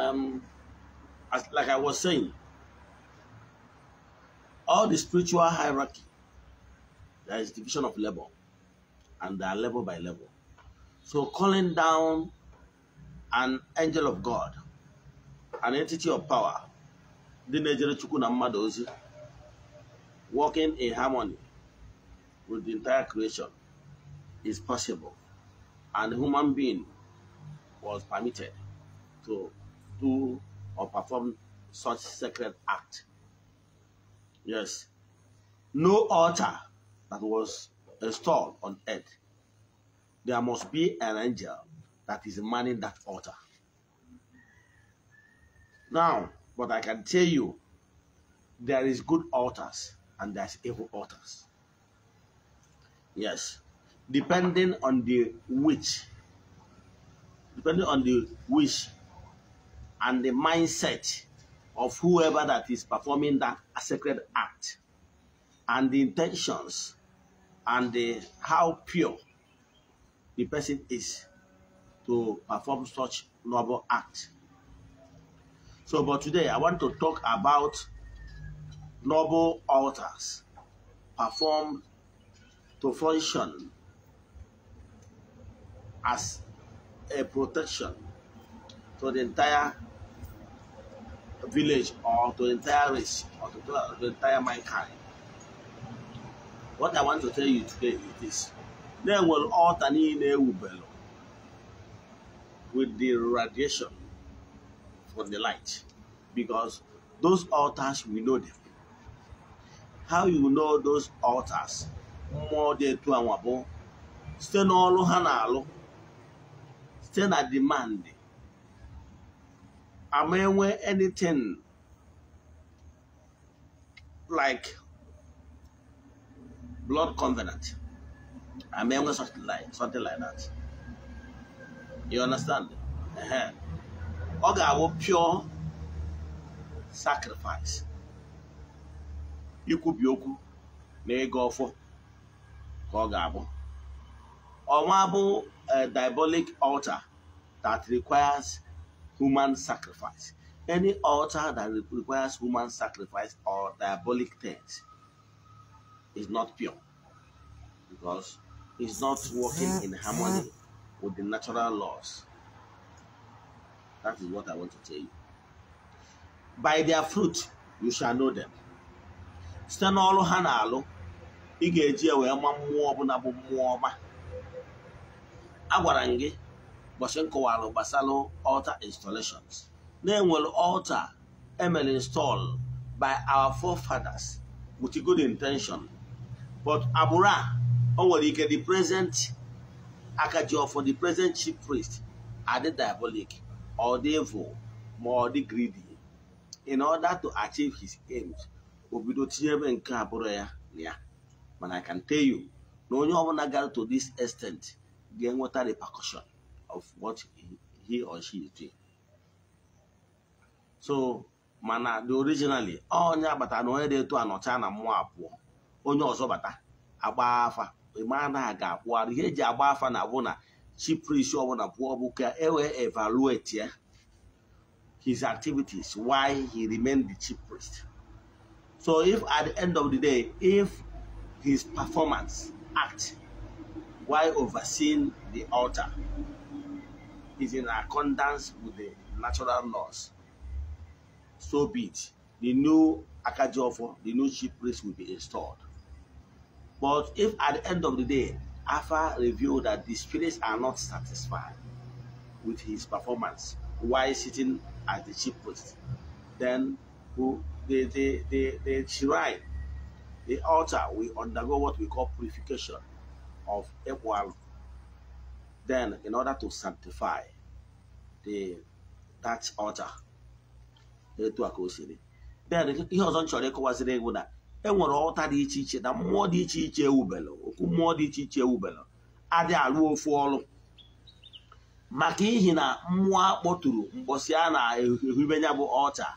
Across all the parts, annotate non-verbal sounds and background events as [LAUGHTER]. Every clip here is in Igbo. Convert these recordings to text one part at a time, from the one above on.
um, as, like I was saying, all the spiritual hierarchy, there is division of level, and they are level by level. So calling down an angel of God, an entity of power, the working in harmony with the entire creation is possible. And human being was permitted to do or perform such sacred act. Yes. No altar that was installed on earth. There must be an angel that is manning that altar. Now, but I can tell you, there is good altars and there's evil altars. Yes. Depending on the which, depending on the which and the mindset of whoever that is performing that sacred act and the intentions and the how pure the person is to perform such noble act. So, but today I want to talk about noble altars performed to function as a protection for the entire village or to entire race or to, to entire mankind. What I want to tell you today is this. They will alternate with the radiation from the light because those altars, we know them. How you know those altars? More than two and one, n'ọrụ ha na-alụ site demand am I wearing anything like blood covenant? Am I wearing something like, something like that? You understand? Uh-huh. Okay, I will pure sacrifice. You could na Kogabo. ọfọ ka a diabolic altar that requires human sacrifice. Any altar that requires human sacrifice or diabolic things is not pure because it's not working in harmony with the natural laws. That is what I want to tell you. By their fruit, you shall know them. site n'ọrụ ha na-alụ i bụ Bashenko nkọwara Basalo altar installations They will altar emere install by our forefathers with a good intention but Abura, a o nwere the present akaji for the present chief priest are the diabolic or the evil ma greedy in order to achieve his aims obido do ebe nke abụrụ ya na ya I can tell you no onye ọbụla gara to this extent are the repercussion of what he, or she is doing. So mana the originally oh, eh, onye agbata na onye na-eto anọcha na mmụọ abụọ onye ọzọ bata agba afa ma na aga akwụgharị ihe eji agba afa na abụ na chiprisi ọbụla pụọ bụ ka e eh, wee evaluate ya eh, his activities why he remained the chief priest. So if at the end of the day, if his performance act while overseeing the altar is in accordance with the natural laws. So be it. The new Akajofo, the new chief priest will be installed. But if at the end of the day, Alpha revealed that the spirits are not satisfied with his performance while sitting at the chief priest, then who, the, the, the, the shrine, the altar will undergo what we call purification of equal Then, in order to sanctify the that altar, etu a ka o siri. Then, ihe ọzọ m chọrọ ịkọwaziri egwu na enwere ọlta dị iche iche na mmụọ dị iche iche ewubelụ okwu mmụọ dị iche iche ewubelụ adị arụ ofu ọrụ maka ihi na mmụọ akpọtụrụ mgbọsị a na-ehube ya bụ ọcha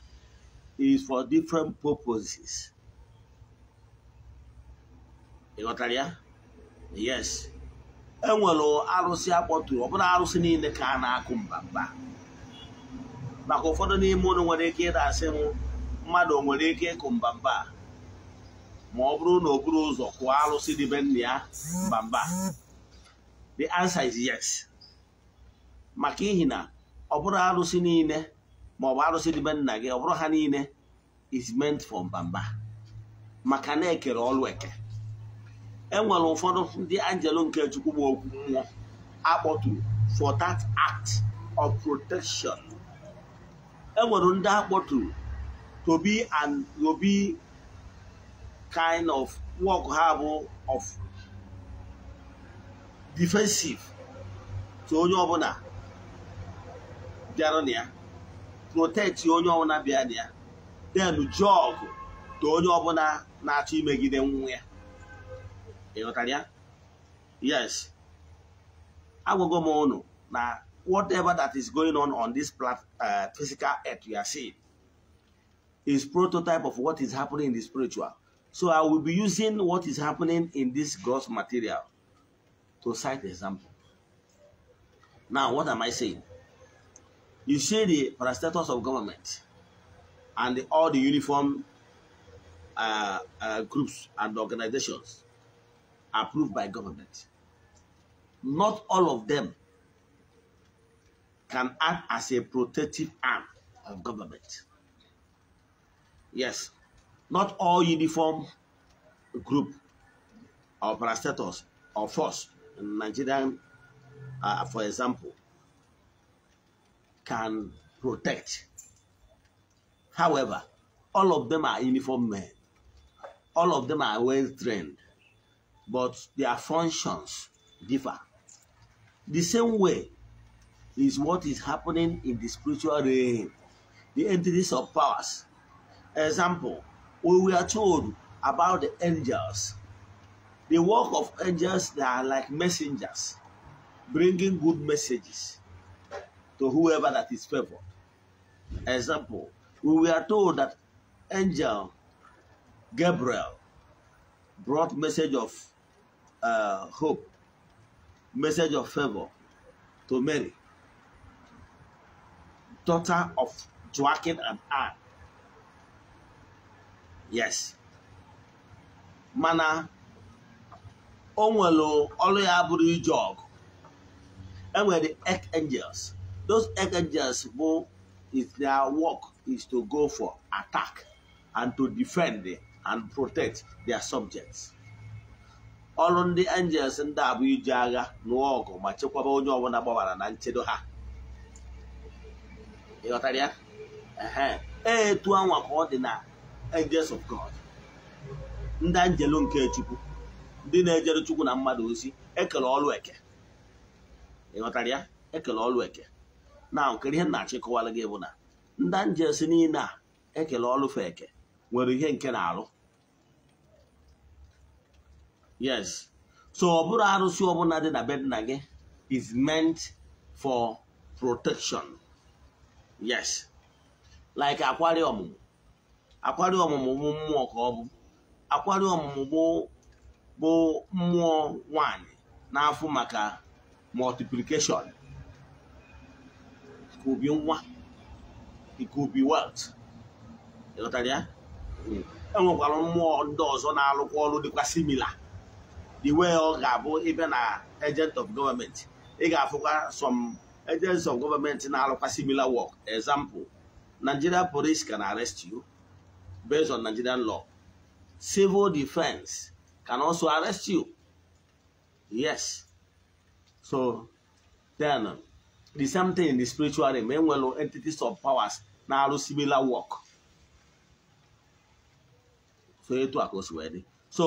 is for different purposes. Ị ghọtara ya? Yes. enwere arụsị akpọtụrụ ọbụla arụsị niile ka a na-akụ mbamba maka ụfọdụ n'ime ụlọ nwere ike ịda asị mmadụ nwere ike ịkụ mbamba ma ọ bụrụ na o buru ụzọ kụọ arụsị dịbe nna ya mbamba the answer is yes maka ihi na ọ bụrụ arụsị niile ma ọ bụ arụsị dịbe nna gị ọ bụrụ ha niile is meant for mbamba maka na-ekere ọlụ eke enwere ụfọdụ ndị angelo nke chukwu bụ okwu mmụọ akpọtụrụ for that act of protection enwere ndị akpọtụrụ to be and to be kind of work ha bụ of defensive to onye ọbụla bịara na ya protect onye ọbụla bịara na ya then job to onye ọbụla na-achọ imegide nwa ya Ịghọtara Yes. I go more unu now. whatever that is going on on this plat, uh, physical earth we are seeing is prototype of what is happening in the spiritual. So I will be using what is happening in this gross material to cite example. Now, what am I saying? You see the parastatus of government and the, all the uniform uh, uh, groups and organizations approved by government. Not all of them can act as a protective arm of government. Yes, not all uniform group or parastators or force in Nigerian, uh, for example, can protect. However, all of them are uniform men. All of them are well trained but their functions differ. The same way is what is happening in the spiritual realm, the entities of powers. Example, we were told about the angels. The work of angels they are like messengers, bringing good messages to whoever that is favored. Example, we were told that angel Gabriel brought message of uh, hope, message of favor to Mary, daughter of Joachim and Anne. Yes. Mana o nwere Jog. And where the egg angels? archangels those angels, bụ if their work is to go for attack and to defend and protect their subjects ọrụ ndị angels ndị a bụ iji agha nụọ ọgụ ma chekwaba onye ọbụla gbabara na nchedo ha ịghọtara ee e, etu anwa ka ọ dị na angels of God ndị angelo nke chukwu ndị na-ejere chukwu na mmadụ ozi ekele ọlụ eke ịghọtara ya ekele ọlụ eke na nkiri ihe na-achọ ịkọwara gị bụ na ndị angels niile a ekele ọlụfe eke nwere ihe nke na-alụ yes so ọ bụrụ arụsị ọbụla dị na be nna gị is meant for protection yes like akwari ọmụmụ akwari ọmụmụ bụ mmụọ ka ọ bụ akwari ọmụmụ bụ mmụọ nwanyị n'afọ maka multiplication ikubi nwa ikubi wealth ịghọtara ya hmm. enwekwara mmụọ ndị ọzọ na-alụkwa ọrụ dịkwa similar the way ọ ga-abụ ịbịa na agent of government ị ga-afụkwa some agents of government na-arụkwa similar work example Nigeria police can arrest you based on Nigerian law civil defense can also arrest you yes so then the same thing in the spiritual realm enwere entities of powers na-arụ similar work so etu a ka o wee dị so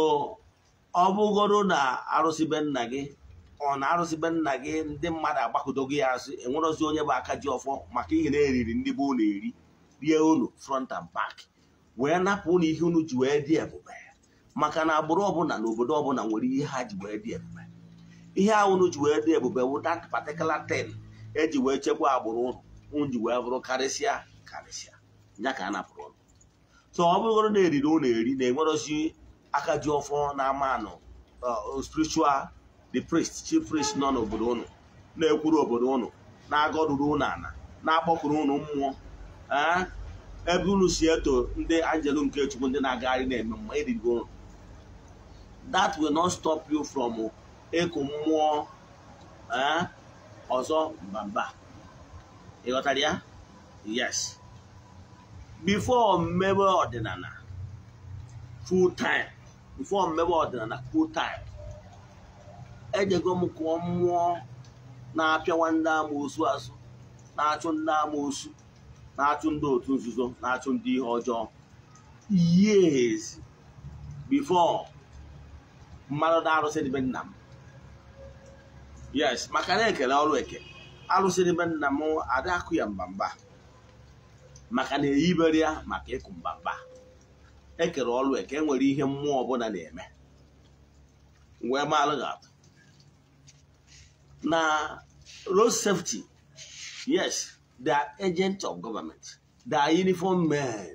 ọ bụgoro na arụsịbe nna gị ọ na arụsịbe nna gị ndị mmadụ agbakọdogo ya asị enwerozi onye bụ aka ji ọfọ maka ihe na-eriri ndị be unu eri rie unu front and back wee napụ unu ihe unu ji wee dị ebube maka na agbụrụ ọbụla na obodo ọbụla nwere ihe ha ji wee dị ebube ihe ahụ unu ji wee dị ebube wụ that particular thing eji wee chekwa agbụrụ unu unu ji wee bụrụ karịsịa karịsịa ya ka a napụrụ unu so ọ bụgoro na eriri unu eri na-enwerozi aka ọfọ na-ama anọ spiritual the priest chief priest nọ n'obodo ụnụ na-ekwuru obodo ụnụ na-agọduru ụnụ ana na ụnụ mmụọ ebe unu si eto ndị anjelu nke chukwu ndị na-agagharị na-eme mma erigo ụnụ that will not stop you from ịkụ mmụọ ọzọ mbamba ị ghọtara ya yes before mmebe ọdịnala full time mfụọ mmebe ọdịnala full time ejego m kụọ mmụọ na-apịawa ndị amoosu azụ na-achụ ndị amoosu na-achụ ndị otu nzuzo na-achụ ndị ihe ọjọọ years before mmadụ na-arụsị dịbe nna m yes maka na ekele ọrụ eke arụsị dịbe nna m adakụ ya mbamba maka na eyibere ya maka ịkụ mbamba ekere ọlụ eke enwere ihe mmụọ ọbụla na-eme wee maalụ gị atụ na road safety yes they are agents of government they are uniform men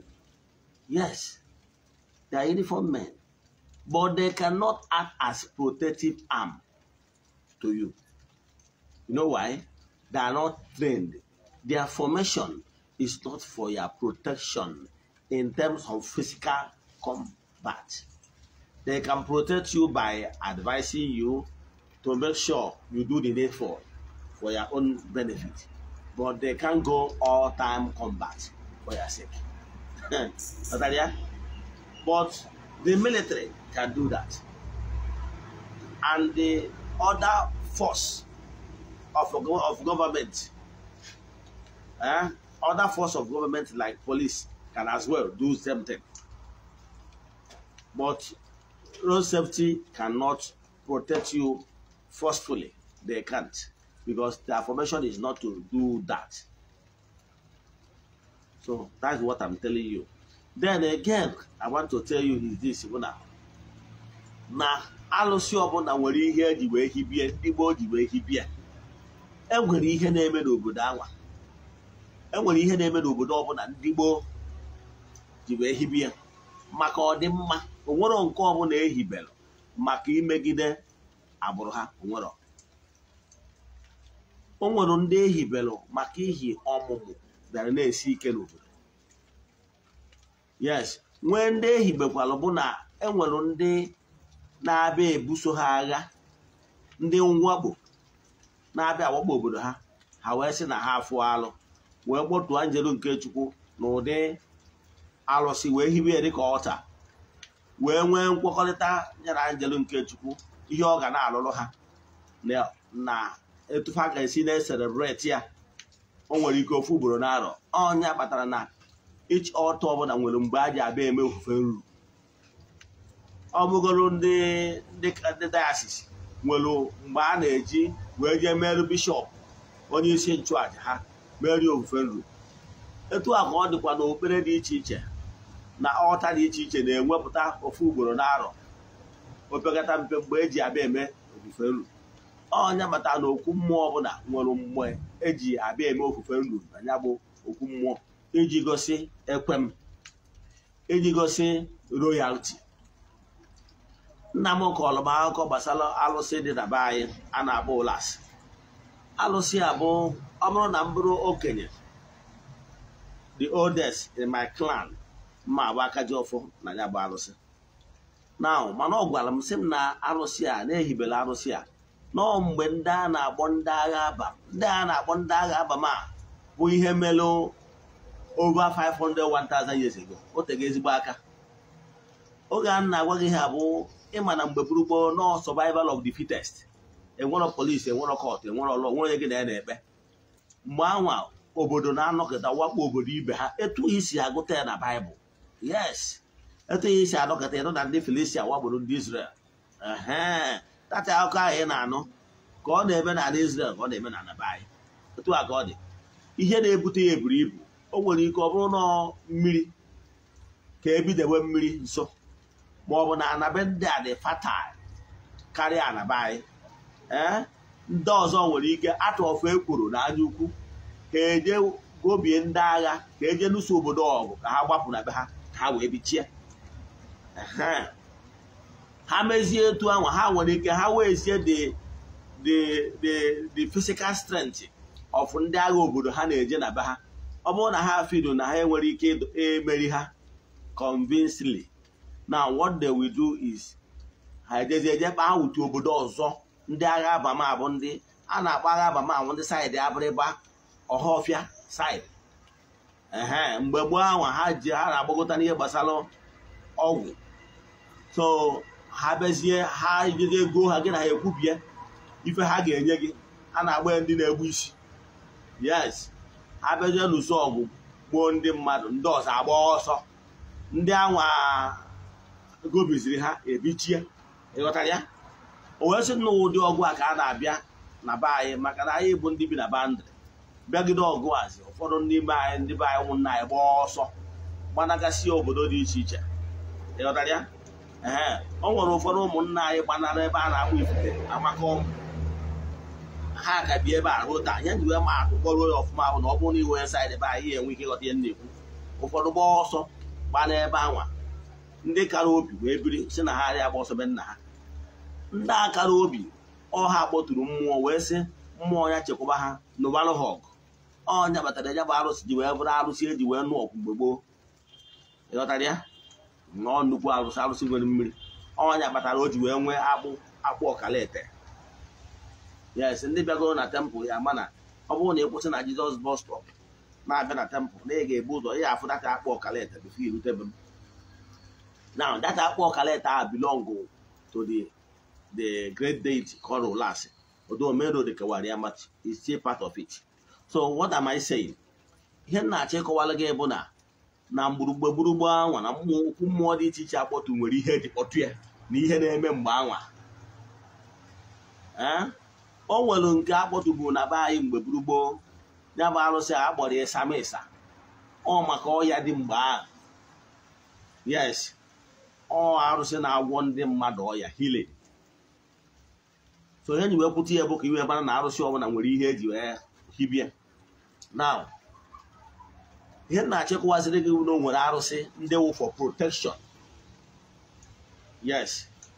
yes they are uniform men but they cannot act as protective arm to you you know why they are not trained their formation is not for your protection in terms of physical combat. They can protect you by advising you to make sure you do the needful for your own benefit. But they can't go all time combat for your sake. [LAUGHS] Natalia? But the military can do that. And the other force of, of government, eh? other force of government like police can as well do same thing. But road safety cannot protect you forcefully. They can't because the formation is not to do that. So that's what I'm telling you. Then again, I want to tell you is this Ibuna. Na alụsị ọbụla nwere ihe eji wee hibie ndị gboo ji wee hibie enwere e ihe na-eme n'obodo anwa enwere ihe na-eme n'obodo ọbụla ndị gboo ji wee hibe ya maka ọdịmma onwero nke ọbụla ehibelụ maka imegide agbụrụ ha onwero o nwere ndị ehibelụ maka ihi ọmụmụ bịara na-esi ike n'obodo yes nwee ndị ehibekwalụ bụ na enwere ndị na-abịa ebuso ha agha ndị mwakpo na-abịa awakpo obodo ha ha wee sị na ha afụ alụ wee kpọtụọ njelu nke chukwu n'ụdị. alụsị wee hiwe ya dịka ọta wee nwee nkwekọrịta ya na njelu nke chukwu ihe ọ ga na-alụrụ ha na etufa ga-esi na-eselebreti ya o nwere ike ofu ugboro n'arọ ọnya kpatara na ichi ọta ọbụla nwere mgbe a ji abịa eme ofufe nru ọ bụgoro ndị dayasis nwere mgbe a na-eji wee jee merụ bishọp onye isi nchụaja ha merie ofufe nru etu a ka ọ dịkwa n'okpukpere dị iche iche na ọta dị iche iche na-enwepụta ofu ugboro n'arọ opekata mpe mgbe eji abịa eme ofufe nru ọnya mata na okwu mmụọ ọbụla nwere mgbe eji abịa eme ofufe nru na bụ okwu mmụọ iji gosi ekwem iji gosi royalti nna m kọọlụ m akụkọ gbasara alụsị dị na be anyị a na-akpọ ụlas alụsị abụ ọ bụrụ na m bụrụ okenye the oldest in my clan mma agba aka ji ọfọ na ya bụ arụsị naụ mana ọ gwara m sị m na arụsị a na-ehibela arụsị a nọ mgbe ndị a na-akpọ ndị agha aba ndị a na-akpọ ndị agha aba ma bụ ihe mere over 500 1000 years ago o tego ezigbo aka oge a na-agwa gị ha bụ ịma na mgbe gburugburu nọ survival of the fitest enwero polisi e kọt enwero lọ nwere gị na ya na-ekpe mgbe anwa obodo na-anọkịta wakpo obodo ibe ha etu isi agụta ya na baịbụl yes etu ihe isi anọkọta ịnụ na ndị Felicia wagburu ndị Israel tata akụkọ ahụ ị na-anụ ka ọ na-eme n'ala Israel ka ọ na-eme na be anyị etu a ọ dị ihe na-ebute ya eburu ibu o nwere ike ọ bụrụ na mmiri ka ebidewe mmiri nso ma ọ bụ na anabe ndị a dị fatal karịa anaba anyị ee ndị ọzọ nwere ike atụ ọfụ ekworo na anya ukwu ka eje gobie ndị agha ka eje lụso obodo ọgụ ka ha gbapụ na be ha ha wee bichie ha mezie etu ahụ ha nwere ike ha wee sie the physical strength of ndị agha obodo ha na-eje na be ha ọ bụrụ na ha fido na ha enwere ike emeri ha convincingly na what they will do is ha ejezi ejekpa ha obodo ọzọ ndị agha abama bụ ndị a na-akpọ agha abama ndị saịdị abịrịba ọhafịa saịdị ee mgbe gboo ahụ ha ji ha na agbagota n'ihe gbasara ọgwụ so ha bezie ha nye gị ego ha gị na ha ekwubie ife ha ga-enye gị ha na-agba ndị na-egbu isi yes ha bezie n'ụsọ ọgwụ gboo ndị mmadụ ndị ọzọ agba ọsọ ndị anwa gobiziri ha ebichie ịghọtara ya o wee na ụdị ọgwụ a ka a na-abịa na be anyị maka na anyị bụ ndị bi na bandịrị bịagide ọgụazi ụfọdụ n'ime anyị ndị be anyị nwụ nna anyị gba ọsọ gbanagasị obodo dị iche iche ịghọtara ee o nwere ụfọdụ ụmụnna anyị gbanara ebe a na-akpụ ifufe amaka ọgwụ ha ka bi ebe a rụta ya ji wee ma akụkọrọ ya ọfụma bụ na ọ bụrụ na iwe saịdị ebe anyị enwe ike ịghọta ihe na-ekwu ụfọdụ gba ọsọ gbana ebe anwa ndị kara obi wee biri si na ha arịa agba ọsọ be nna ha ndị akara obi ọha kpọtụrụ mmụọ wee sị mmụọ ya chekwaba ha n'ụbalụ ha ọgụ ọnya batara ya bụ arụsị ji wee bụrụ arụsị eji wee nụ ọkụ mgbe gboo ịghọtara ya nọọ nnukwu arụsị arụsị nwere mmiri ọnya batara o ji wee nwee akpụ akpụ ọkalete yes ndị bịagoro na tempụl ya mana ọ bụrụ na ị kwụsị na jizọs bọs na-abịa na tempụl na ị ga-ebu ụzọ ya afụ data akpụ bụ bifo irutebe m na data akpụ ọkalete a bilong to the the great deity kọrọ lasị odo omero dịkewara ya machi is part of it so what am I saying ihe m na-achọ ịkọwara gị bụ na na mgburugbe gburugbo anwa na okwu mmụọ dị iche iche akpọtụ nwere ihe eji kpọtụ ya na ihe na-eme mgbe anwa o nwere nke akpọtụbu na be anyị mgbe gbugbo ya bụ arụsị a kpọrọ ịsa ma ịsa ọ maka ọya dị mgbe ahụ yes ọ arụsị na-agwọ ndị mmadụ ọya hile so ihe e ji wee ya bụ ka iwe mara na arụsị ọbụla nwere ihe eji wee hibie now ihe na-achịkwaziri gị na arụsị ndị wụ for protection yes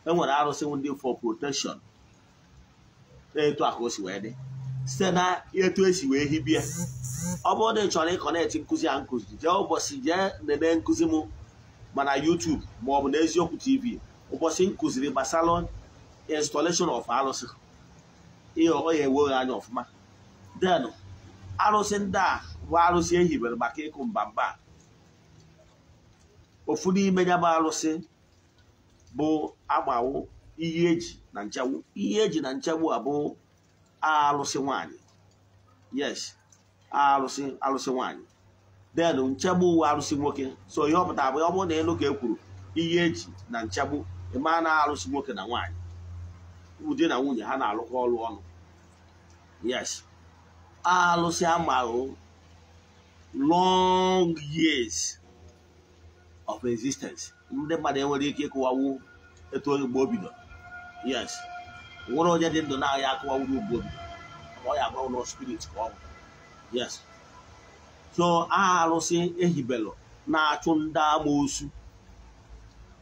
e nwere arụsị ndị for protection etu akụ si wee dị site na etu esi wee hibie ọ bụrụ na ị chọrọ ịkọnetị nkụzi a nkụzi jee ụbọchị jee nene nkụzi m mana YouTube maọbụ n'eziokwu TV ụbọchị nkụziri gbasara installation of arụsị ihe ọ ya enweghị anya ọfụma denu arụsị ndị a bụ arụsị ehibere maka ịkụ mba ofu n'ime ya bụ arụsị bụ agbawo ihe eji na nchegbu ihe eji na nchegbu a bụ arụsị nwanyị yes arụsị arụsị nwanyị den nchegbu uwe arụsị nwoke so ihe ọpụta abụọ bụ ọ bụrụ na elu ka e kwuru ihe eji na nchegbu ịma na arụsị nwoke na nwanyị ụdị na nwunye ha na-alụkọ ọrụ ọnụ yes alụsị amahụ long years of existence ndị mmadụ enwere ike ịkụwawu etu oge mgbe o bido yes nwere onye dị ndụ na-ahịa akụwawuru mgbe o bido ọ ya agbanwe na spirit ka ọ bụ yes so aha alụsị ehibelụ na-achụ ndị amoosu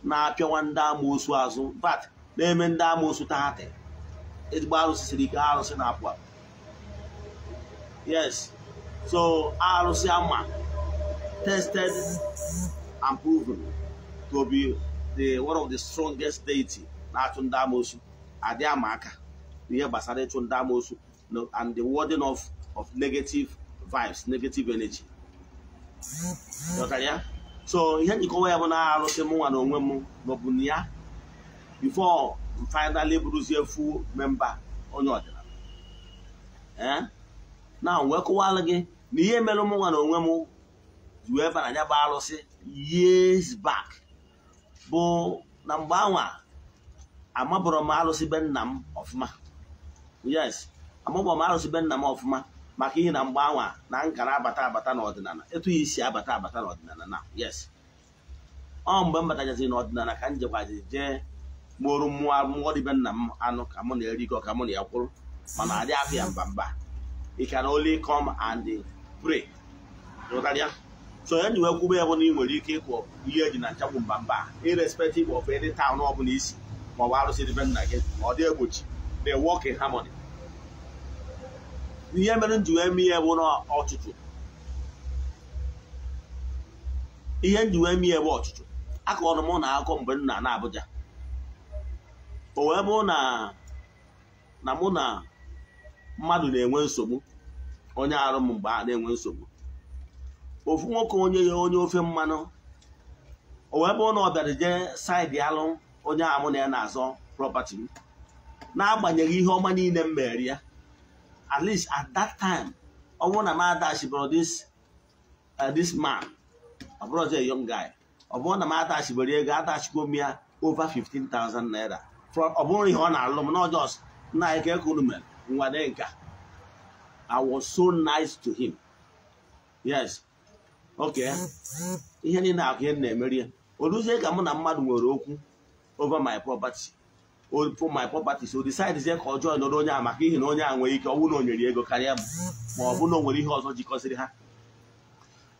na-apịawa ndị amoosu azụ bat na-eme ndị amoosu tahatị ezigbo arụsị siri ike arụsị na-apụ apụ yes so arụsị ama tested and proven to be the one of the strongest deity na-achụ ndị amoosu adị ama aka n'ihe gbasara ịchụ ndị amoosu and the warding off of negative vibes negative energy ya so ihe njikọwa ya bụ na arụsị mụnwa na onwe m maọbụ na ya before finally bụrụzie full member onye ọdịnala eh? na wee kụwalụ gị na ihe mere ụmụnwa nwa na onwe m wee bara anya bụ alụsị years back bụ na mgbe anwa amabụrụ m alụsị be nna m ọfụma yes amabụrụ m alụsị be nna m ọfụma maka ihe na mgbe anwa na nkara abata abata n'ọdịnala etu ya isi abata abata n'ọdịnala na yes ọ mgbe m batachazi n'ọdịnala ka m jekwazi jee mụrụ mmụọ mmụọ dịbe nna m anụ ka mụ na-erikọ ka mụ na ya kwụrụ mana adị afọ ya mba mba ị can only come and pray so enyi nwe kwube ya bụ na ị nwere ike ịkpọ ihe eji na nchagbu mba mba irrespective of any town ọ bụla isi ma ọ bụ arụsị be nna gị ọ dị egbochi they work in harmony ihe mere nji wee mee ya bụ na ọchụchụ ihe nji wee mee ya bụ ọchụchụ akọrọ m na akụkọ mgbe nna na Abuja o wee bụ na na mụ na mmadụ na-enwe nsogbu onye arụ m mgbe a na-enwe nsogbu ofu nwoke onye ya onye ofe mmanụ o wee bụ na ọ bịara jee saịdị alụ onye amụ na ya na-azọ prọpati m n'agbanyeghị ihe ọma niile m mere ya at least at that time ọ bụrụ na m adachibụrụ this uh, this man ọ bụrụ ọzọ young guy ọ bụrụ na m adachibere ego adachikwo m ya over 15,000 naira ọ bụrụ ihe ọ na-alụ m na ọjọọ na ka ekuru mere Nwadenka. I was so nice to him. Yes. Okay. Ihe niile akụ ihe na-emeri ya. Oluzie ka mụ na mmadụ nwere okwu over my property. for my property so decide ka ọjọọ nọrọ onye a maka ihi na onye a nwere ike ọnwụ na onyere ego karịa mụ ma ọ bụ na o nwere ihe ọzọ jikọsịrị ha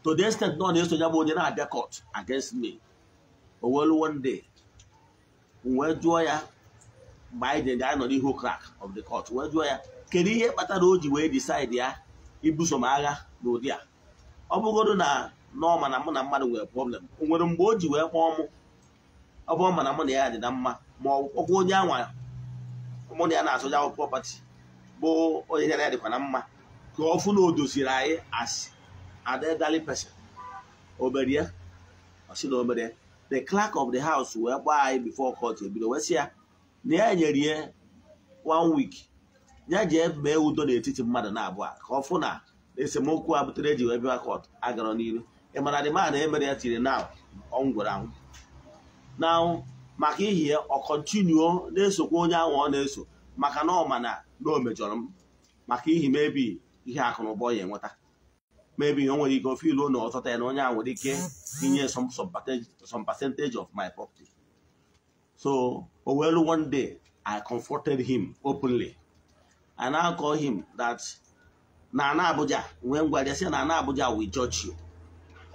to the extent na na-eso ya bụ onye na-abịa court against me o one day wee jụọ ya mgbe anyị ga-anọ n'ihu crack of the court wee jụọ ya kedu ihe kpatara o ji wee decide ya ibuso m agha n'ụdị a ọ bụgodo na n'ọma na mụ na mmadụ nwere problem o nwere mgbe o ji wee kpọọ mụ ọ bụ ma na mụ na ya dị na mma ma ọkwa onye anwa mụ na ya na-asụja akwụkwọ pati bụ onye ya na ya dịkwa na mma ka ọ fụ na o doziri anyị as adedali person obere ya na obere the clerk of the house wee gbaa anyị bifo court ebido wee ya na ya nyere ya one week ya jee mee udo n'etiti mmadụ na-abụọ ka ọ fụ na esemokwu a butere eji wee bịa kọt agara n'iru ịmara dị ma na emere ya tiri na ọngwụrụ anwụ na maka ihi ya ọ kọntinuo na-esokwa onye ahụ ọ na-eso maka na ọ ma na na o mejọrọ m maka ihi mebi ihe akụ na ụba ya enweta mebi o nwere ike ofe ilu na ọtọta ya na onye ahụ nwere ike inye some percentage of my property So, well, one day I comforted him openly I now call him that Nana Abuja, when we say Nana Abuja, we judge you.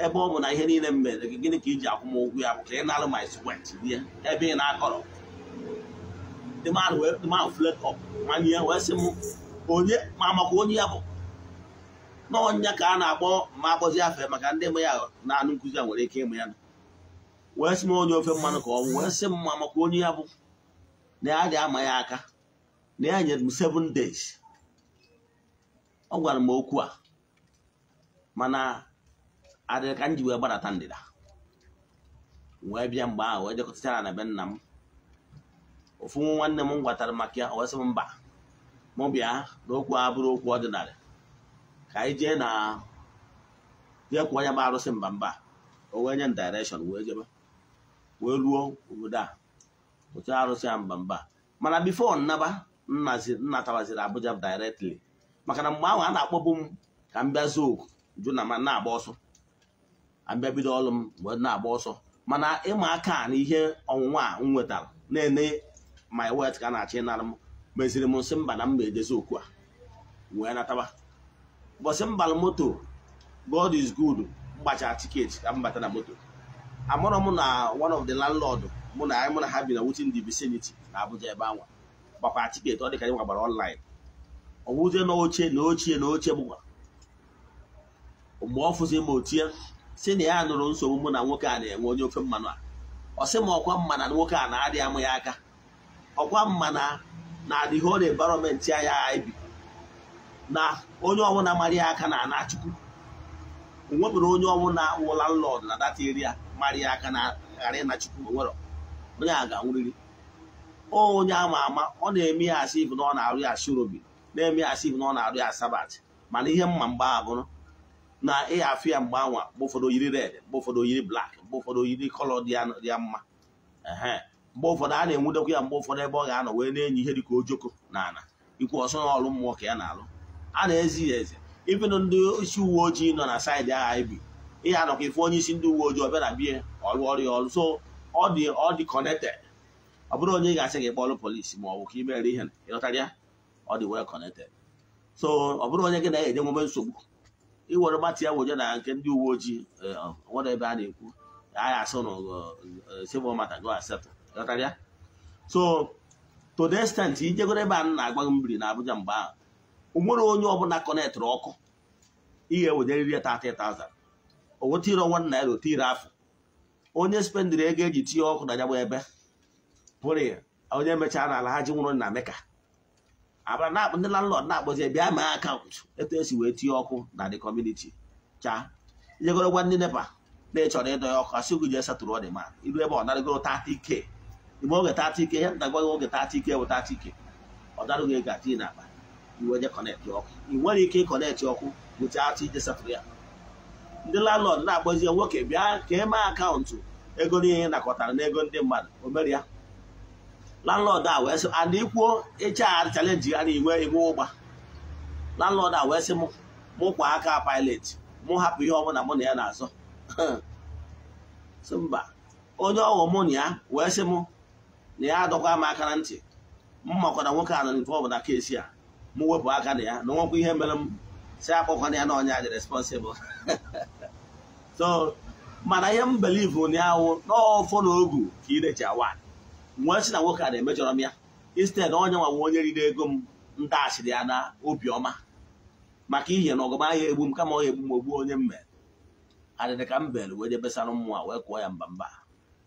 Ebe ọ bụ na ihe niile m mere gị gịnị ka iji akwụ m ya bụ ka ị nara my sweat bie ebe ị na-akọrọ the man wee the man fled up manye wee sị m onye ma maka onye ya bụ n'ọnya ka a na-akpọ ma akpọzi afe maka ndị mụ ya na anụ nkụzi a nwere ike ịmụ ya nọ wee sị m onye ofe mmanụ ka ọ bụ wee sị m maka onye ya bụ na ya dị ama ya aka na ya nyere m seven days ọ gwara m okwu a mana adịrị ka m ji wee gbadata ndịda wee bịa mgbe ahụ wee jekọtachara na be nna m ofu nwa nwanne m gwatara maka ya wee sị m mba mụ bịa na okwu a bụrụ okwu ọdịnala ka anyị jee na jee kwụọ onye bụ arụsị mba mba o wee nye m direction wee jebe wee ruo obodo a otu arụsị ya mba mba mana bifo nnaba nnatawaziri Abuja directly maka na mgbe ahụ a na-akpọbu m ka m bịa zoo na ma na-agba ọsọ abịa bido ọrụ m mgbe na-agba ọsọ mana ịma aka na ihe ọnwụnwa a m nwetara na-ene my wet ka a na achị ịnara m meziri m nsị mba na mba ejezi okwu a wee nataba ụbọchị mbal moto God is good mgbacha tiketi ka m bata na moto amụrụ m na one of the landlord mụ na anyị mụ na ha bi na within the vicinity na Abuja ebe anwa gbakwa tiketi ọ dị ka anyị nwagbara online ọ bụzie na na ochie na oche gbụgwa mgbe ọ fụzi m otie si na ya nụrụ nsogbu mụ na nwoke a na-enwe onye ofe mmanụ a ọ sị m ọkwa mma na nwoke a na-adị amụ ya aka ọkwa mma na na-adịghị ọrụ environment anya anyị bi na onye ọbụla mara ya aka na anachukwu chukwu nwebụrụ onye ọbụla wụ landlord na that area marị aka na ghara ịna chukwu onye a ga-anwụrịrị onye ama ama ọ na-eme ya asị ibu na ọ na-arụ ya asịrobi na-eme ya asị ibu na ọ na-arụ ya sabat mana ihe mma mgba bụrụ na ịha afọ ya mgbe anwa mgbe ụfọdụ oyiri red mgbe ụfọdụ yiri blak mgbe ụfọdụ oyiri kọlọ dị ya mma mgbe ụfọdụ a na enwudokwa ya mgbe ụfọdụ ebe ọ ga-anọ wee na-enyi ihe dịka ojoko na ana ikwu ọsọ ọlụ mmụọ ka ya na-alụ a na-ezi ya eze ibenụ ndị isi uwe ojii nọ na saịdị agha ibi ihe anọkwa ifu onye isi ndị uwe ojii ọbịa na bie ọrụ ọrụ ya ọrụ so ọ dị ọ dị ọ bụrụ onye ga-asị gị kpọọrụ polisi ma ọ bụ ka ihe ịghọtara ya ọ dị so ọ bụrụ onye gị na-enye nwome nsogbu iwere mmatụ ya wụnye na nke ndị uwe ojii eh, um, a na-ekwu agha asụ eh, eh, civil matter go accept ịghọtara ya so to the ijegoro ebe a na-agba mmiri na Abuja mgbe ahụ o ọkụ ị ga-ewejeriri onweta ire ọnwa naira ote ire afọ onye spendiri ego eji tinye ọkụ na ya ebe pụrụ ya onye mechara n'ala ha ji nwụrụ na meka abara na ndị landlord na-akpọzi bịa ma akaụntụ etu esi wee tinye ọkụ na the cha chaa ijegoro gwa ndị nepa na ịchọrọ ịdọ ya ọkụ asị gị jee satụrụ ọ dị ma iru ebe ọ narịgoro tata ike ime oge tata ike ya nta gwaghị oge tata ike bụ tata ike ọ darụghị ego atinye n'akpa iwe je kọnetị ọkụ ị nwere ike ịkọnetị ọkụ bụcha atụ ije satụrụ ya ndị landlord na-akpọzie nwoke bịa ka e mee akaụntụ ego niile nakọtara n'ego ndị mmadụ o ya landlord a wee sị and ikwuo ịcha chalenji ya na inwe iwu ụgba landlord a wee sị m mụ kwa aka pilot mụ hapụ ihe ọbụla mụ na ya na-azọ sị [LAUGHS] mba onye ọghọ mụ na ya wee sị m na ya adọkwa m aka na ntị m makwara nwoke a nọ nke ọbụla kesi a mụ wepụ aka na ya na nwekwa ihe mere m si akpọkwana ya na ọnya dị responsibụl [LAUGHS] so mana ihe m believe ụnyaahụ n'ọfọ na ogu ị irechi wa nwee si na nwoke a na-emejọrọ m ya instead onye nwa nwe onye riri ego m ntaghachiri ya na obiọma maka ihe na ọgụma ahịa egbu m kama ọ egbu m ogbu onye mme mere adịdị ka m bere wee jebesara mmụọ wee kụọ ya mba mba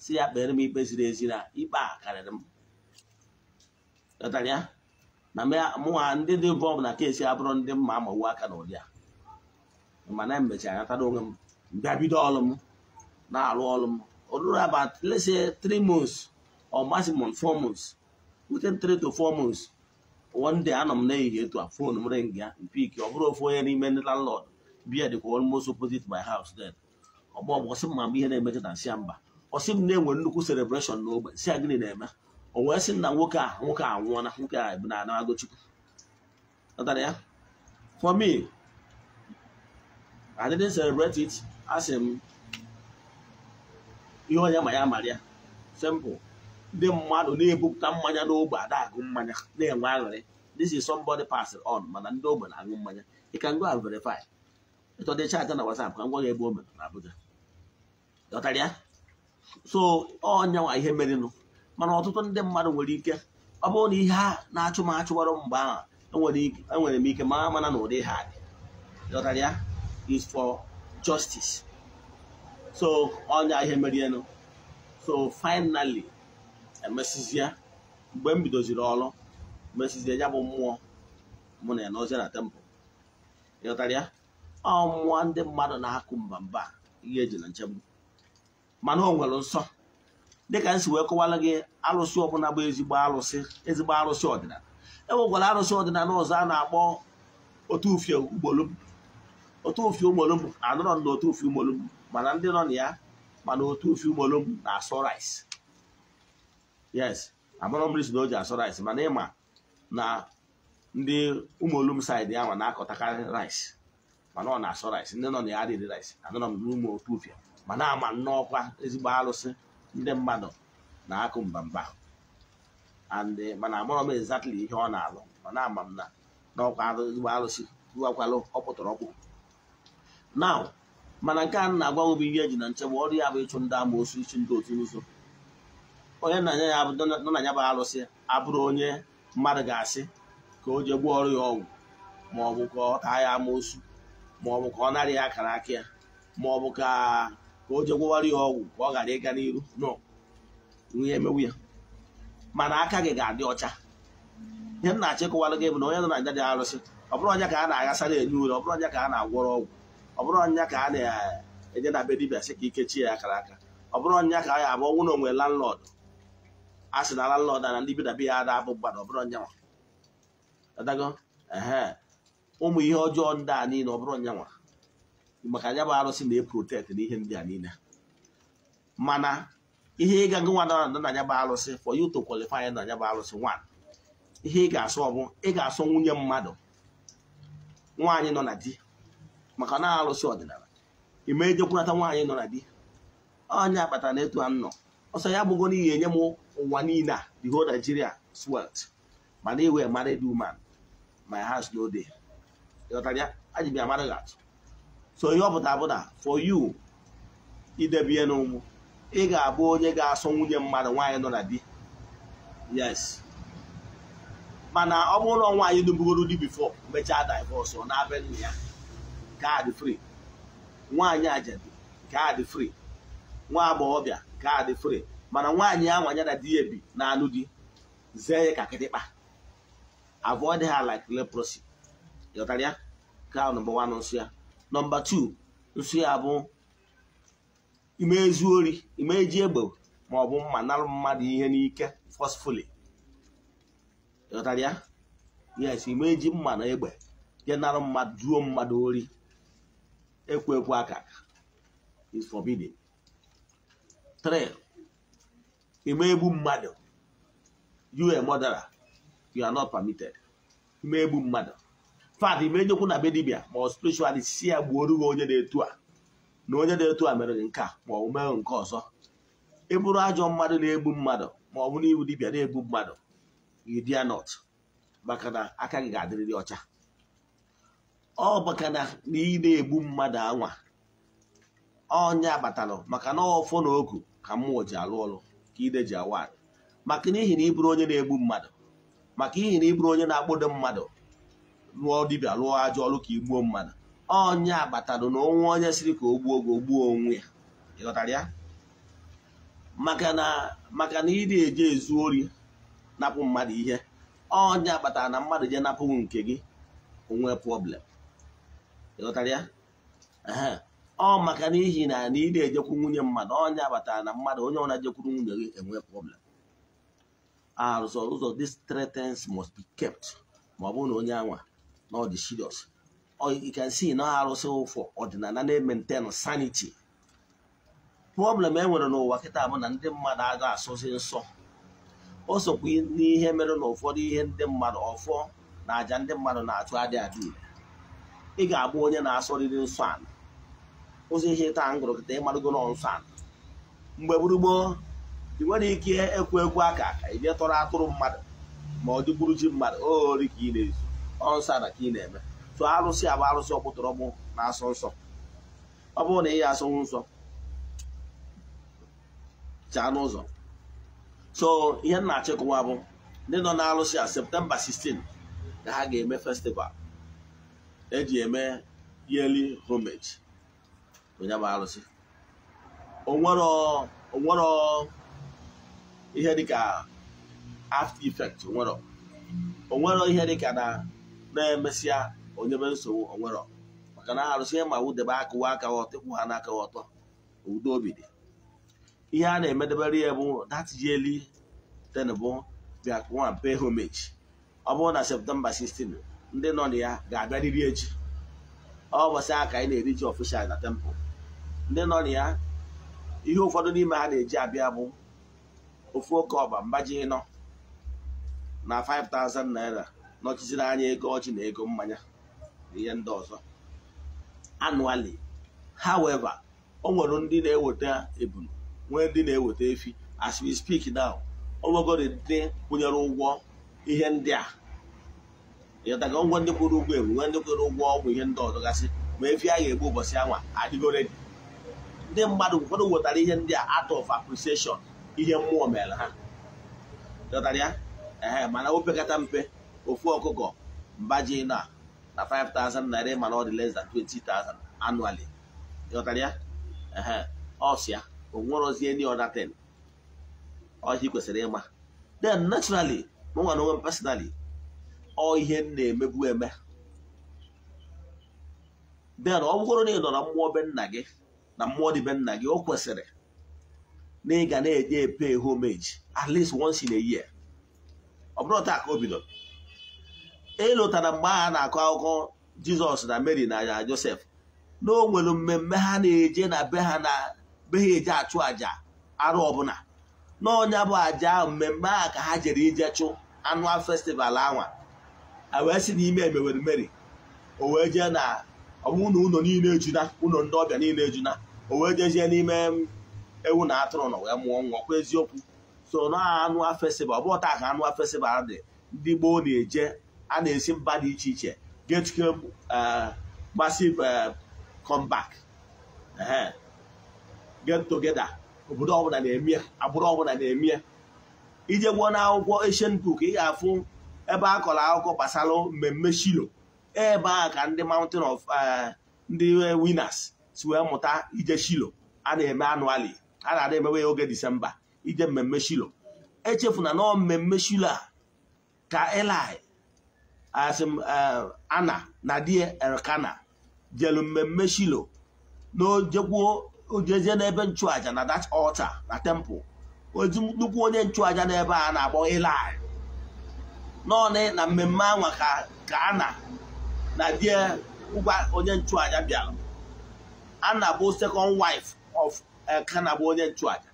si ya kpere m ikpe ziri ezi na ikpe a karịrị m ya na mụnwa ndị dị involve na kesi abụrụ ndị mma amawu aka na ụdị a mana emechara ya tara onwe m bịa bido ọrụ m na-arụ ọrụ m ọ ruru lese let's say three months or maximum four months to four months one day anọ m na ehihie etu a fon m ring ya mpik ọ bụrụ ofu onye n'ime ndị landlord biya dịkwa almost opposite my m ma ihe na-emecha na mba ọsị m na-enwe nnukwu celebration n'ogbe si a na-eme o wee sị na nwoke a nwoke a nwụọna nwoke a bụ na anago ya for me I didn't asị m ihe onye ma ya mara ya sempụ ndị mmadụ na-ebupụta mmanya n'ógbè Ada agụ mmanya na-enwe aṅụrị this is somebody passing on mana ndị ogbe na-aṅụ mmanya ị ka ngo and verify ịtọdị chaatị na WhatsApp ka ngwa gị ebe o na Abuja dọtara so ọnyanwa ihe merenụ mana ọtụtụ ndị mmadụ nwere ike ọ bụrụ na ihe a na-achụ m achụwarụ mgbe ahụ enwere m ike mara mana na ụdị ha dị dọtara is for justice so onye ihe merienu so finally emesizie mgbe m bidoziri ọrụ mesizie ya bụ mmụọ mụ na ya n'ozie na temple ịghọtara ya ọ mmụọ ndị mmadụ na-akụ mba mba ihe eji na nchegbu mana o nwere nsọ dịka si wee kọwara gị alụsị ọbụla bụ ezigbo alụsị ezigbo alụsị ọdịnala e nwekwara arụsị ọdịnala ụzọ a na-akpọ otu ufie ugboro otu ofi umolumbu anọrọ na otu ofi umolumbu mana ndị nọ na ya mana otu ofi umolumbu na-asọ rice yes amara mmiri na o ji asọ rice mana ịma na ndị saidị ya ma na-akọtakarị rice mana ọ na-asọ rice ndị nọ na ya adịghị rice anụrọ m n'ụmụ otu ofe mana ama nnọọkwa ezigbo alụsị ndị mmadụ na-akụ mbamba and mana amụrọ m exactly ihe ọ na-alụ mana ama m na n'ọkwa ezigbo alụsị ruwakwalụ ọ pụtara ọkpụ. now mana nke a na-agwa bụ ihe eji na nchebe ọrụ ya bụ ịchụ ndị amoosu ichi ndị otu ụzọ onye nna anya ya nọ na ya bụ alụsị abụrụ onye mmadụ ga-asị ka o ọrụ ya ọgwụ ma ọ bụ ka ọ taa ya amoosu ma ọ bụ ka ọ narị ya akara aka ya ma ọ bụ ka ka o ya ọgwụ ka ọ ghara ịga n'iru nọ ihe emewu ya mana aka gị ga-adị ọcha ihe m na-achọ gị bụ na onye nọ na nja dị arụsị ọ bụrụ onye ka a na-aghasara enye ure ọ bụrụ onye ka a na-agwọrọ ọgwụ ọ bụrụ ọnya ka a na-enye na be dibia sị ka ikechi ya akara aka ọ bụrụ ọnya ka a abụ ọnwụ na onwe landlord a sị na landlord na ndị bi na ya ada abụ mgbada ọ bụrụ ọnyanwa adago ehe ụmụ ihe ọjọọ ndị a niile ọ bụrụ ọnyanwa maka anya bụ arụsị na-eprotekt na ihe ndị a niile mana ihe ịga gị nwa na anya bụ arụsị for you to qualify na anya bụ arụsị nwa ihe ị ga-asụ ọ bụ ị ga-asụ nwunye mmadụ nwaanyị nọ na di maka na alụsị ọdịnala ime ejekwunata nwaanyị nọ na di onye akpatara na etu a nọ ọsọ ya bụgo n'ihi enye m ụwa niile a e the whole Nigeria swelt mana iwe married woman my house no dey aji bịa mara gị atụ so ihe ọ pụtara bụ for you idebe n'ụmụ ị ga-abụ onye ga-asọ nwunye mmadụ nwaanyị nọ na di yes mana ọ bụrụ na nwaanyị dubugoro di bifo mechaa divọs ọ na-abịa nna ya nke a dị free nwaanyị ajadi nke a dị free nwa agbọghọbịa nke a dị free mana nwaanyị a nwanyara di ebi na anụ di zee ya ka kịtịkpa avoid ha like leprosy ịghọtara ya ka nọmba wan nsụ ya nọmba tu nsụ ya bụ ime ezu ori ime eji egbe ma ọ bụ mma narụ mmadụ ihe n'ike fosfoli ịghọtara ya yes ime eji mma na egbe ya narụ mmadụ duo mmadụ ori ekwo ekwu aka is forbidden three ime egbu mmadụ you a you are not permitted ime egbu mmadụ fat ime nyekwu na be dibia ma ọ si ya gbuoro onye na-etu a na onye na-etu a mere nke a ma ọ mere nke ọzọ ị e ajọ mmadụ na-egbu mmadụ ma ọ bụ n'ihu dibia na-egbu mmadụ you maka na aka gị ga-adịrịrị ọcha ọ maka na ị na-egbu mmadụ anwa ọnya batalụ maka na ọfọ na oku ka mmụọ ji alụ ọrụ ka ide ji awa maka n'ihi na ịbụrụ onye na-egbu mmadụ maka ihi na ịbụrụ onye na-akpọdo mmadụ lụọ dibịa lụọ ajọ ọrụ ka igbuo mmadụ ọnya batalụ na onwe onye siri ka o gbuo oge ogbuo onwe ya ịghọtara ya maka na maka na ị na-eje ezu ori napụ mmadụ ihe ọnya batara na mmadụ je napụ nke gị onwe problem ịghọtara ya ọ maka n'ihi na na ị na-ejekwu nwunye mmadụ onye abatara na mmadụ onye ọna jekwuru nwunye gị enwe problem arụzọ ụzọ this threats must be kept ma ọ bụrụ na onye anwa na ọ dị serious you can see na arụsị ụfọ ọdịnala na-maintain sanity problem e nwere n'ụwa kịta bụ na ndị mmadụ aga asụzi nsọ o sokwa n'ihe mere na ụfọdụ ihe ndị mmadụ ọfọ na àjà ndị mmadụ na-achụ adị adị ire ị ga-abụ onye na-asọrịrị nsọ ala ụzọ ihe taa ngụrụ kịta ịmarụgo nsọ ala mgbe gburugboo ị nwere ike ekwu ekwu aka ka ị bịa tọrọ atụrụ mmadụ ma ọ dịgburu ji mmadụ ori ka ị na-ezu ọnsọ ala ka ị na-eme tụọ arụsị abụ arụsị ọkpụtọrọgbụ na-asọ nsọ ọ bụrụ na ị ya asọnwu nsọ chaa n'ụzọ so ihe m na-achịkọwa bụ ndị nọ n'arụsị a septemba 16 ka ha ga-eme festival eji eme yearly homage onye bụ arụsị onwere ihe dịka after effect onwere onwere ihe dịka na na-emesịa onyebe nsogbu onwere maka na arụsị ma wudebe akụwa aka ọtọ ịkwụ ha n'aka ọtọ udo obi dị ihe a na-emedebere ya bụ that yearly ten bụ bịa pay homage ọ bụrụ na septemba 16 ndị nọ na ya ga-abịarịrị echi ọ bọsị aka anyị na-eri ji ọfishal na tempụl ndị nọ na ya ihe ụfọdụ n'ime ha na-eji abịa bụ ofu oke ọba mbaji nọ na 5000 naira nọchiziri anya ego ọchị na ego mmanya na ihe ndị ọzọ annually however o nwere ndị na-eweta ebunu nwee ndị na-eweta efi as we speak now o nwegoro ndị kwụnyere ụgwọ ihe ndị a ịghọtago ụgwọ ndị kwụrụ ụgwọ egwu nwe ndị kwụrụ ụgwọ ọgwụ ihe ndị ọzọ gasị ma efi a ga-egbu ụbọchị anwa adịgoredi ndị mmadụ ụfọdụ wetara ihe ndị a out of appreciation ihe mmụọ mere ha ịghọtara ya mana opekata mpe ofu ọkụkọ mbaji na na 5,000 naira mana ọ dị less than 20,000 annually ịghọtara ya ehe ọsịa onwerozie ndị ọdatin ọhịa kwesịrị ịma then naturally mụnwa na onwe m personally ọ ihe m na-emebu eme den ọ bụrụ na ị nọ na mmụọ be nna gị na mmụọ dị be nna gị o kwesịrị na ị ga na-eje epe homage at least once in a year ọ bụrụ taa ka o bidoro ịlụtara e mgbe a na-akọ akụkọ jizọs na mary na josef na o nwere mmemme ha na-eje na be ha na be ha eje achụ àjà arụ ọbụla n'ọnya bụ àjà mmemme a ka ha jere ije chụ anụ festival anwa wee sị n'ime ime emewere meri o wee jee na ọbụna ụlọ niile ejuna ụlọ ndị ọbịa niile ejuna o wee jezie n'ime mm, ewu na atụrụ na wee mụọ nwa ọkwa eziokwu so na anụ afesiba ọ bụ ọta ka anụ afesiba dị ndị gboo na-eje a na-esi mba dị iche iche getuke uh, massive uh, comeback get together obodo ọbụla na-eme agbụrụ ọbụla na-eme ije gwuo na akwụkwọ Asian ị ga-afụ ebe a kọrọ akụkọ gbasara mmemme shilo ebe a ka ndị mountain of eh, ndị eh, winners si wee mụta ije shilo a na-eme anụali a na-ada emewe oge disemba ije mmemme shilo echefu na mmemme shilo a ka eli eh, asim ana na di elkana jelu mmemme shilo na ojekwuo ojezie n'ebe nchụaja na that ọlta na temple ozi nnukwu onye nchụaja n'ebe a na-akpọ eli naanị na mmemme anwa ka a na na die ngwa onye nchụàja bịara ana bụ second waif of Elkana eh, bụ onye nchụàja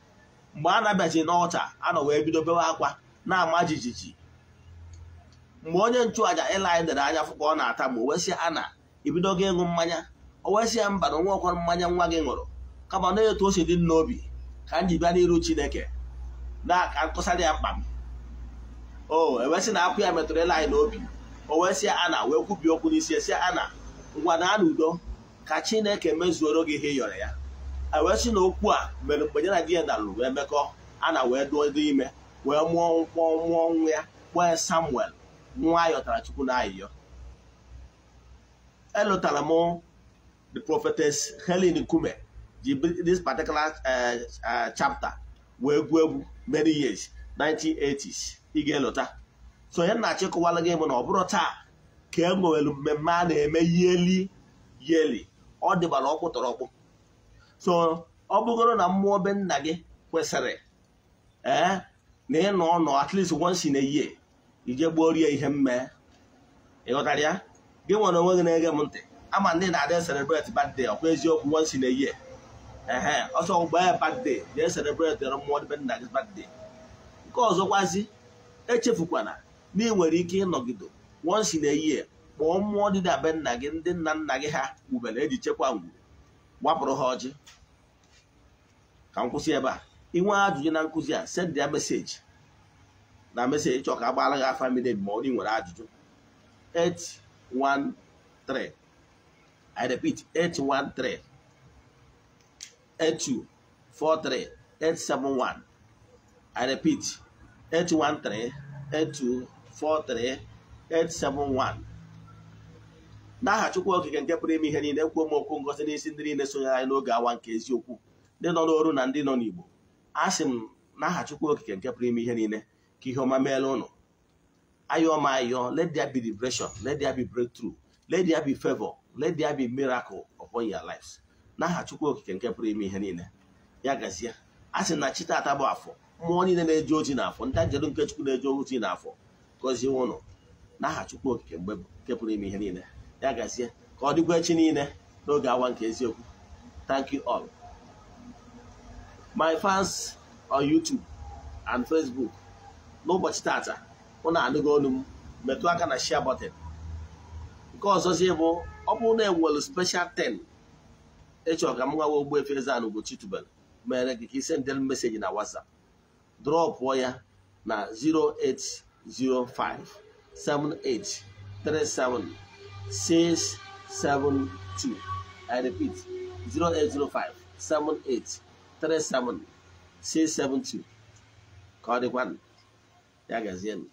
mgbe a na-abịachi n'ọcha anọ wee bido bewe akwa na-ama jijiji mgbe onye nchụaja ịla anyị dere anya fụka ọ na-ata ma o ana Anna ibido gị ịṅụ mmanya o ya mba na onwe mmanya nwa gị ṅụrụ kama na etu o dị n'obi ka m ji bịa n'iru Chineke na ka dị ya mkpa m o ewesị na akwụ ya metụrụ anyị n'obi o wesịa ana wee kwubie okwu n'isi esi ana ngwa na ana udo ka chineke mezuoro gị ihe yọrọ ya ewesị na okwu a mere mgbe ya na di ya dalụ wee mekọ ana wee duo dị ime wee mụọ nkwọ mụọ nwa ya kpọọ samuel nwa ayọtara chukwu na ayịyọ elụtara m the prophetess helen nkume ji this particular eh, eh, chapter wee gụọ egwu many years 1980s ị ga-elota so onye nnachi gị bụ na ọ bụrụ taa ka e nwewelu mmemme a na-eme yeli yeli ọ dịbara ọkpụ tọrọ ọkpụ so ọ bụgoro na mmụọ be nna gị kwesịrị ee eh, na ịnọ ọnọ nọ at least once year ije gbuo rie ihe mme ịghọtara ya gị nwere onwe gị na-ege m ntị ama ndị na-adị celebrate birthday ọkwa eziokwu once in a year ehe ọsọ gbaa ya birthday jee celebrate mmụọ be nna gị birthday nke ọzọkwazi echefukwana na ị e nwere ike ịnọgide wọnsi na ehihie kpọọ mmụọ dị dabe nna gị ndị nna nna gị ha wubere eji chekwa ngwuru gbapụrụ ha ọjị ka m kwụsị ebe a nwee ajụjụ na nkụzi a send ya meseji na meseji chọọ ka a gị afa ma ị nwere ajụjụ 813 I 813 8243 871 n'aha Chukwu Okike nke pụrụ ime ihe niile kwuo m okwu ngozi n'isi ndị niile sonyere anyị n'oge awa nke eziokwu ndị nọ n'oru na ndị nọ n'Igbo a sị m n'aha Chukwu Okike nke pụrụ ime ihe niile ka ihe ọma meela ụnụ ayọọ m ayọ let there be liberation let there be breakthrough let there be favor let there be miracle upon your lives n'aha Chukwu Okike nke pụrụ ime ihe niile ya gazie a sị na chi taata bụ afọ mmụọ niile na-eji oji n'afọ ndị njedụ nke chukwu na-eji oji n'afọ gọzie ụnụ n'aha chukwu okike mgbe nke pụrụ ime ihe niile ya gazie ka ọ dịkwa echi niile n'oge awa nke eziokwu thank you all my fans on YouTube and Facebook n'ụbọchị tata na anụgo olu m metụ aka na shia button nke ọzọzie bụ ọ bụrụ na enwere special ten ịchọ ka m nwawa Ogbuefi efere ana Ugochi tubelu mere gị ka ị sendere meseji na WhatsApp drọpụọ ya na 0805 672 I repeat 0805 672 ka ọ dịkwanụ ya gazienụ